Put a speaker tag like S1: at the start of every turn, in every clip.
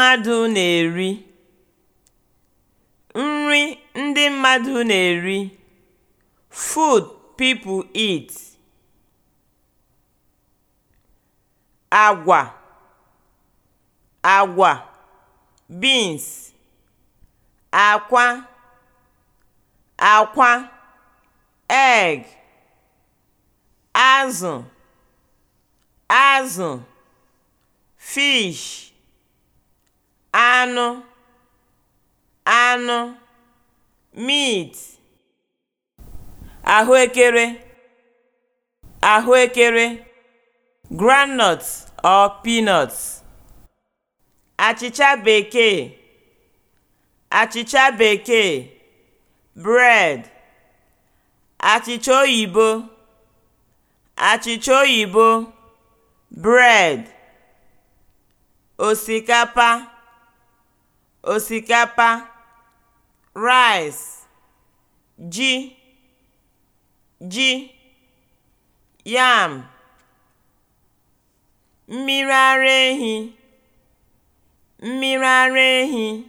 S1: mmadụ na-eri (nri ndị mmadụ na-eri – food people eat), agwa (agwa, beans), akwa (akwa, egg), azụ (azụ, fish) anụ (anụ) meat ahụekere (ahụekere) groundnut or peanut achịcha bekee achịcha bekee bread achịcha oyibo achịcha oyibo bread osikapa osikapa rice ji ji yam mmiri ara ehi mmiri ara ehi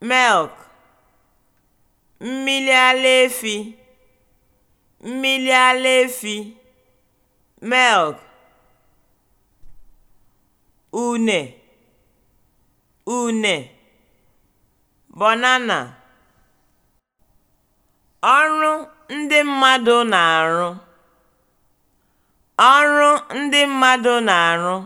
S1: milk mmiri ala efi mmiri ara efi milk une une banana na ọrụ ndị mmadụ na-arụ